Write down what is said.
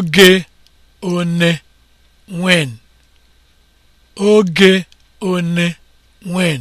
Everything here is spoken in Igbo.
oge one when oge one when